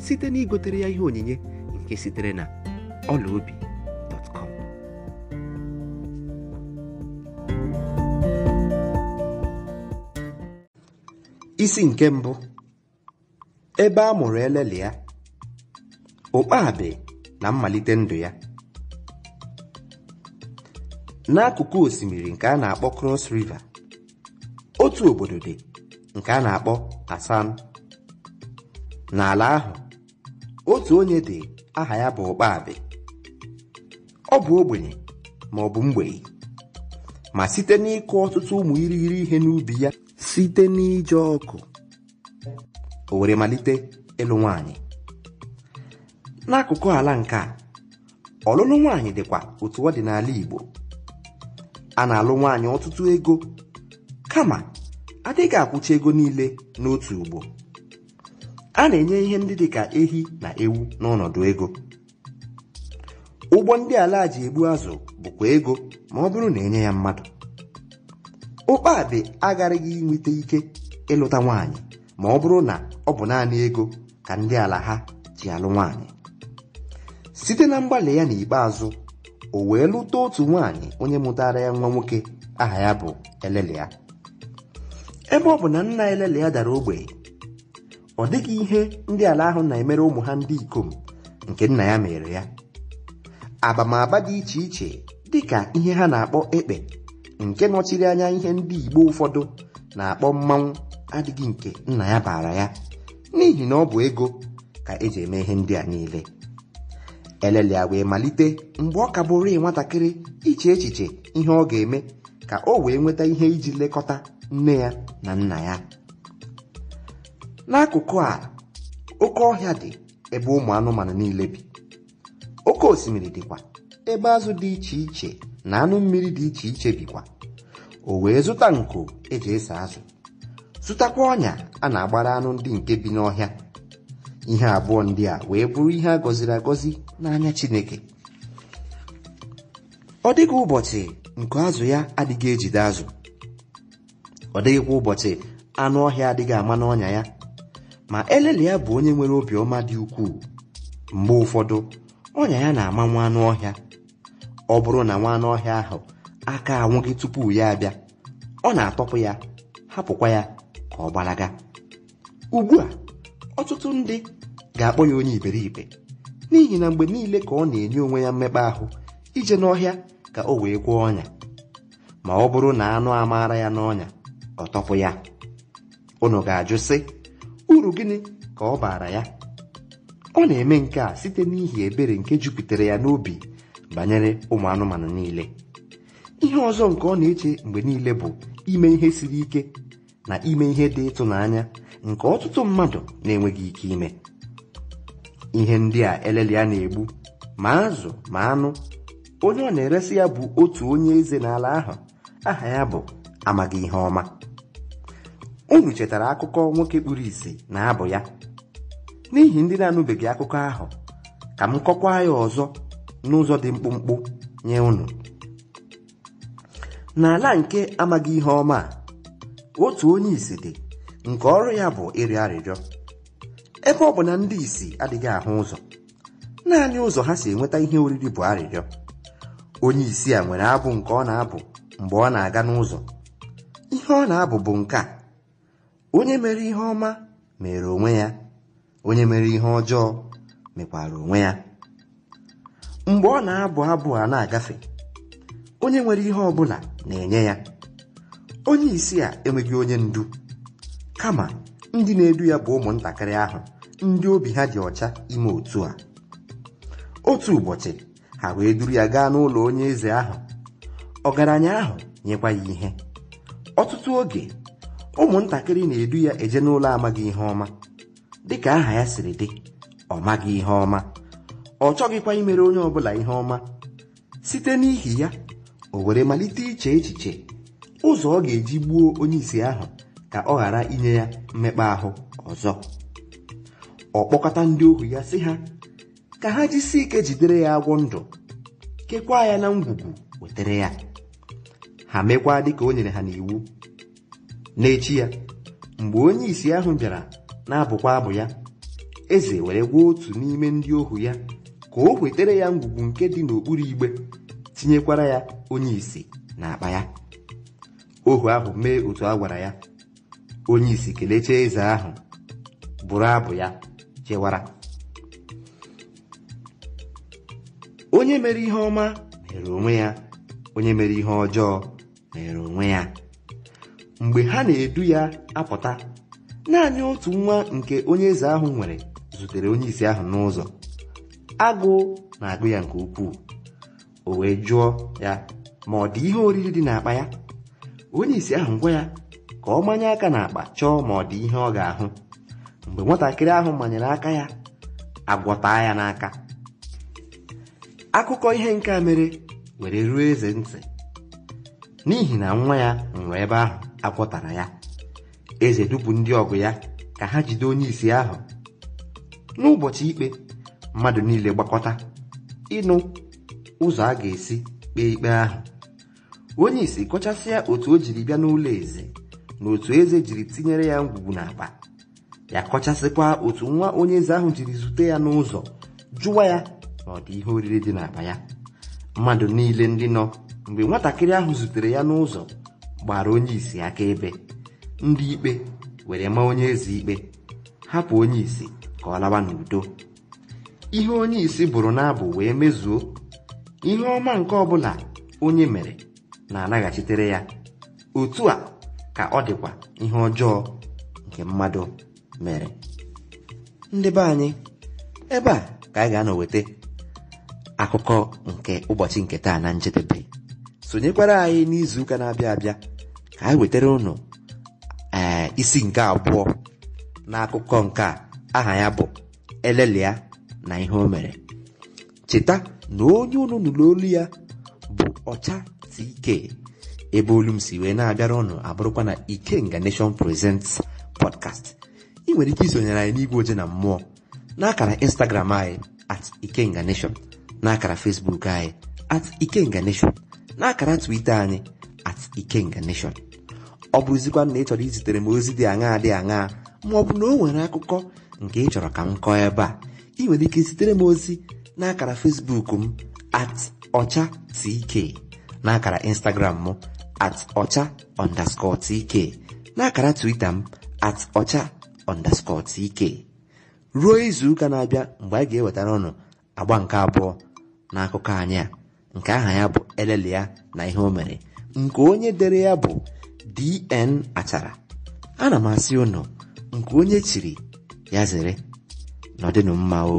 site na igotere ya ihe onyinye nke sitere na ọlaobi isi nke mbụ ebe a mụrụ ya ụkpabi na mmalite ndụ ya n'akụkụ osimiri nke a na-akpọ cross river otu obodo dị nke a na-akpọ asan n'ala ahụ otu onye dị aha ya bụ ụkpabe ọ bụ ogbenye ma ọ bụ mgbei ma site n'ịkụ ọtụtụ ụmụ irighiri ihe n'ubi ya site n'ije ọkụ o were malite ịlụ nwanyị n'akụkụ ala nke a ọlụlụ nwaanyị dịkwa otu ọ dị n'ala Igbo a na-alụ nwaanyị ọtụtụ ego kama adịghị akwụcha ego niile n'otu ugbo a na-enye ihe ndị dị ka ehi na ewu n'ọnọdụ ego ụgbọ ndị ala ji egbu azụ bụkwa ego ma ọ bụrụ na enye ya mmadụ ụkpabị agaraghị nweta ike ịlụta nwaanyị ma ọ bụrụ na ọ bụ naanị ego ka ndị ala ha ji alụ nwaanyị site na mgbalị ya n'ikpeazụ o wee lụta otu nwaanyị onye mụtara ya nwa nwoke aha ya bụ ya. ebe ọ bụ na nna Elelia dara ogbenye ọ dịghị ihe ndị ala ahụ na-emere ụmụ ha ndị ikom nke nna ya mere ya abamaba dị iche iche dị ka ihe ha na-akpọ ekpe nke nọchiri anya ihe ndị igbo ụfọdụ na-akpọ mmanwụ adịghị nke nna ya bara ya n'ihi na ọ bụ ego ka eji eme ihe ndị a niile a wee malite mgbe ọ ka bụrụ nwatakịrị iche echiche ihe ọ ga-eme ka o wee nweta ihe iji lekọta nne ya na nna ya n'akụkụ a oke ọhịa dị ebe ụmụ anụmanụ niile bi oke osimiri dịkwa ebe azụ dị iche iche na anụ mmiri dị iche iche bikwa o wee zụta nko eji ese azụ zụtakwa ọnya a na-agbara anụ ndị nke bi n'ọhịa ihe abụọ ndị a wee bụrụ ihe a gọziri agọzi n'anya Chineke ọ dịghị ụbọchị nku azụ ya adịghị ejide azụ ọ dịghịkwa ụbọchị anụ ọhịa adịghị ama n'ọnya ya ma eleli ya bụ onye nwere obiọma dị ukwuu mgbe ụfọdụ ọnya ya na-ama nwa anụ ọhịa ọ bụrụ na nwa anụ ọhịa ahụ aka anwụghị tupu ya abịa ọ na-atọpụ ya hapụkwa ya ka ọ gbalaga ugbu a ọtụtụ ndị ga-akpọ ya onye iberibe n'ihi na mgbe niile ka ọ na-enye onwe ya mmekpa ahụ ije n'ọhịa ka o wee kwụọ ọnya ma ọ bụrụ na anụ amaara ya n'ọnya ọ tọpụ ya unu ga-ajụ sị uru gịnị ka ọ baara ya ọ na-eme nke a site n'ihi ebere nke jupụtara ya n'obi banyere ụmụ anụmanụ niile ihe ọzọ nke ọ na-eche mgbe niile bụ ime ihe siri ike na ime ihe dị ịtụnanya nke ọtụtụ mmadụ na-enweghị ike ime ihe ndị a elele ya na-egbu ma azụ ma anụ onye ọ na-eresi ya bụ otu onye eze n'ala ahụ aha ya bụ amaghị ihe ọma unu chetara akụkọ nwoke kpuru isi na abụ ya n'ihi ndị na-anụbeghị akụkọ ahụ ka m kọkwaa ya ọzọ n'ụzọ dị mkpụmkpụ nye unu n'ala nke amaghị ihe ọma a otu onye isi dị nke ọrụ ya bụ ịrị arịrịọ ebe ọ bụ na ndị isi adịghị ahụ ụzọ naanị ụzọ ha si enweta ihe oriri bụ arịrịọ onye isi a nwere abụ nke ọ na-abụ mgbe ọ na-aga n'ụzọ ihe ọ na-abụ bụ nke a onye mere ihe ọma mere onwe ya onye mere ihe ọjọọ mekwara onwe ya mgbe ọ na-abụ abụ a na-agafe onye nwere ihe ọ bụla na-enye ya onye isi a enweghị onye ndu kama ndị na-edu ya bụ ụmụntakịrị ahụ ndị obi ha dị ọcha ime otu a otu ụbọchị ha wee duru ya gaa n'ụlọ onye eze ahụ ọgaranya ahụ nyekwa ya ihe ọtụtụ oge ụmụntakịrị na-edu ya eje n'ụlọ amaghị ihe ọma dịka aha ya siri dị ọ maghị ihe ọma ọ chọghịkwa imere onye ọbụla ihe ọma site n'ihi ya o were malite iche echiche ụzọ ọ ga-eji gbuo onye isi ahụ ka ọ ghara inye ya mmekpa ahụ ọzọ ọ kpọkọta ndị ohu ya sị ha ka ha jisi ike jidere ya agwọ ndụ kekwaa ya na ngwugwu wetara ya ha mekwaa dịka o nyere ha n'iwu n'echi ya mgbe onye isi ahụ bịara na-abụkwa abụ ya eze were gwa otu n'ime ndị ohu ya ka o wetere ya ngwugwu nke dị n'okpuru igbe tinyekwara ya onye isi akpa ya ohu ahụ mee otu a gwara ya onye isi kelecha eze ahụ bụrụ abụ ya chewara onye mere ihe ọma mere onwe ya onye mere ihe ọjọọ mere onwe ya mgbe ha na-edu ya apụta naanị otu nwa nke onye eze ahụ nwere zutere onye isi ahụ n'ụzọ Agụ na-agụ ya nke ukwuu o wee jụọ ya ma ọ dị ihe oriri dị n'akpa ya onye isi ahụ gwa ya ka ọ manye aka n'akpa chọọ ma ọ dị ihe ọ ga-ahụ mgbe nwatakịrị ahụ manyere aka ya agwọta ya n'aka akụkọ ihe nke a mere were ruo eze ntị n'ihi na nwa ya nwụrụ ebe ahụ agwọtara ya eze dupu ndị ọgụ ya ka ha jide onye isi ahụ n'ụbọchị ikpe mmadụ niile gbakọta ịnụ ụzọ a ga-esi kpee ikpe ahụ onye isi kọchasịa otu o jiri bịa n'ụlọ eze na otu eze jiri tinyere ya ngwugwu n'akpa ya kọchasịkwa otu nwa onye eze ahụ jiri zute ya n'ụzọ jụwa ya na ọdị ihe oriri dị n'akpa ya mmadụ niile ndị nọ mgbe nwatakịrị ahụ zutere ya n'ụzọ gbara onye isi akaebe ndị ikpe were ma onye ezi ikpe hapụ onye isi ka ọ lawa n'udo ihe onye isi bụrụ n'abụ wee mezuo ihe ọma nke ọbụla onye mere na-anaghachitere ya otu a ka ọ dịkwa ihe ọjọọ nke mmadụ mere ndị be anyị ebe a ka anyị ga anọweta weta akụkọ nke ụbọchị nke taa na njedebe sonyekwara anyị n'izuụka na-abịa abịa anyị wetara unu ee isi nke abụọ n'akụkọ nke a aha ya bụ elelia na ihe o mere cheta na onye unu nụrụ olu ya bụ ọcha tk ebe olu si wee na-abịara unu abụrụkwa na ikenga nation presents podcast ị nwere ike isonyere anyị n'igwe oje na mmụọ n'akara instagram anyị at ikenga nation n'akara facebook anyị at ikenga nation n'akara twitter anyị at ikenga nation ọ bụrụzikwa na ị chọrọ izitere m ozi dị aṅaa dị aṅaa ma ọ bụ na o nwere akụkọ nke ị chọrọ ka m kọọ ebe a ị nwere ike zitere m ozi na akara Facebook m at ọcha tk na akara Instagram m at ọcha underscore tk na akara Twitter m at ọcha underscore tk ruo izuụka na-abịa mgbe a ga-ewetara ụnụ agba nke abụọ na akụkọ anyị a nke aha ya bụ ya na ihe o mere nke onye dere ya bụ dn achara ana m asị ụnụ nke onye chiri ya zere nọdịnụ mma o